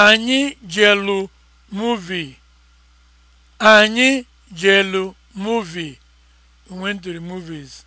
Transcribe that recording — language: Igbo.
Anyị jelu muvi. Anyị jelu muvi. We went movies.